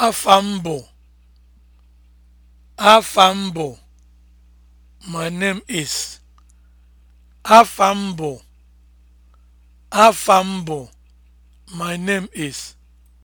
Afambo Afambo my name is Afambo Afambo my name is